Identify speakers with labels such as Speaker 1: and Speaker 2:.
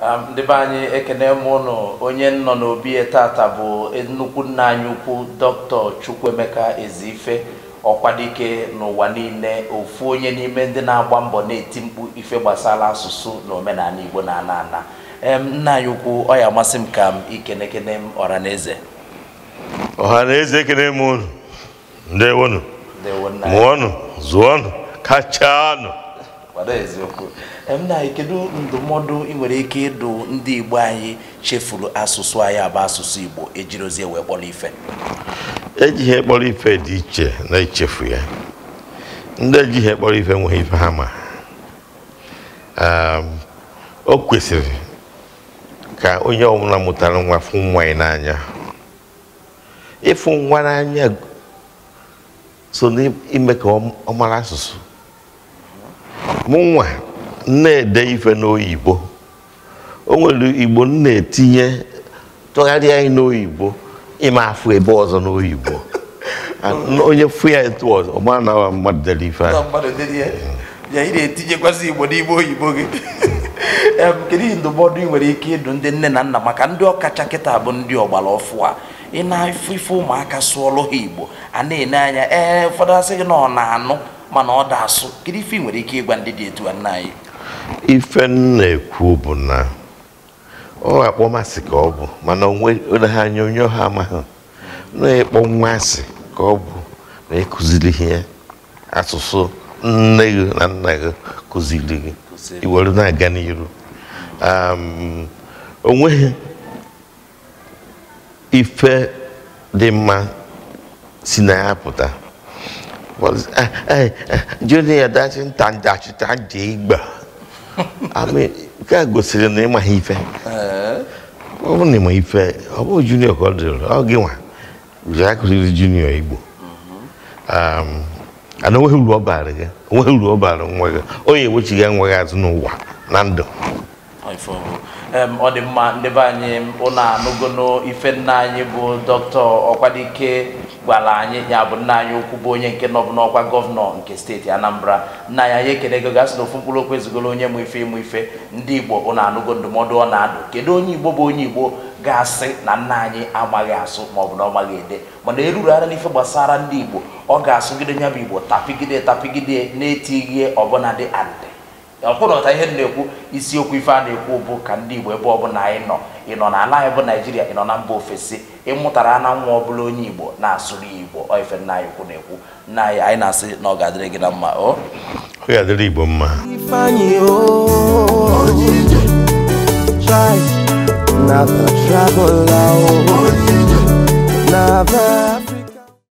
Speaker 1: ndị be anyị ekene m ụnụ onye nọ n'obi e tata bụ nnukwu nna anyị ukwu dr Chukwuemeka Eziife ọkwadike n'ụwa niile ofu onye n'ime ndị na-agba mbọ na-eti mkpu ife gbasara asụsụ na omenala Igbo na ana ana nna anyị ukwu ọ ya amasị m ka m ikenekene m
Speaker 2: ekene m ụnụ ndewonụ mụọnụ zụọnụ kachanụ gbado eziokwu
Speaker 1: nna anyị kedu ndụmọdụ ị nwere ike ịdụ ndị Igbo anyị chefuru asụsụ anyị abụ asụsụ Igbo ejirozie wee kpọrọ ife
Speaker 2: eji ihe kpọrọ ife dị iche na ichefu ya ndị eji ihe kpọrọ ife nweghị ife ha ma ehm, o kwesịrị ka onye ọbụla mụtara nwa fụ nwa ya n'anya ịfụ nwa n'anya so n'ime ka ọ mara asụsụ mụnwa na-ede ife n'oyibo o nwere igbo m na-etinye tụgharịa anyị n'oyibo ịma afụ ebe ọzọ n'oyibo onye fụ ya etu ọzọ ọ mara na mmadụ dere ife
Speaker 1: ya ị na-etinyekwasị igbo n'ime oyibo gị kedu ndụmọdụ ị nwere ike ịdụ ndị nne na nna maka ndị ọkacha kịta bụ ndị ọgbara ọfụ a ị na-afụ ife ụmụaka sụọlụ ha igbo a na-ene anya ee ụfọdụ asị gị na ọ na-anụ mana ọ da asụ kedu ife nwere ike ịgwa ndị dị etu a nna anyị
Speaker 2: ife nna ekwu bụ na ọ akpọ masị ka ọ bụ mana ha anya onye ọha amaghị na-ekpọ nwa asị ka ọ bụ na ịkụziri ihe asụsụ nne gị na nna gị kụziri gị iwere na-aga n'iru onweghị ife dị mma si na ya pụta Junior dachinta ndachita ji igba nke a gosiri na ịmaghị ife ọ bụrụ na ịma ife ọ bụrụ junior ka ọ dịrị ọ gị nwa ji akụziri junior igbo ana onweghị uru ọ baara gị uru azụ n'ụwa na ndụ
Speaker 1: ọ dị mma ndị be anyị ụlọ anụgono ife nna anyị bụ dọkịta ọkwadike gwara anyị ya bụ nna anyị okwu bụ onye nke nọbụ n'ọkwa gọvanọ nke steeti anambra nna ya ya ekele ego gasị na ofu mkpụrụ okwu ezigoro onye mụ ife ịmụ ife ndị igbo ụlọ anụgo ndụmọdụ ọ na-adụ kedu onye igbo bụ onye igbo ga-asị na nna anyị amaghị asụ maọbụ na ọ maghị ede mana erurara n'ife gbasara ndị igbo ọ ga-asụgide nya bụ igbo tapigide tapigide na-etighi ọbụnadị adị. ọkwụnọta ihe na-ekwu isiokwu ife a na-ekwu bụ ka ndị Igbo ebe ọbụla anyị nọ ị nọ na ala anyị bụ naijiria ị nọ na mba ofesi ịmụtara na nwa ọbụla onye Igbo na-asụrụ Igbo ife nna anyị kwu na-ekwu nna anyị anyị na-asị na ọ ga-adịrị gị na mma ọ ga-adịrị
Speaker 2: Igbo mma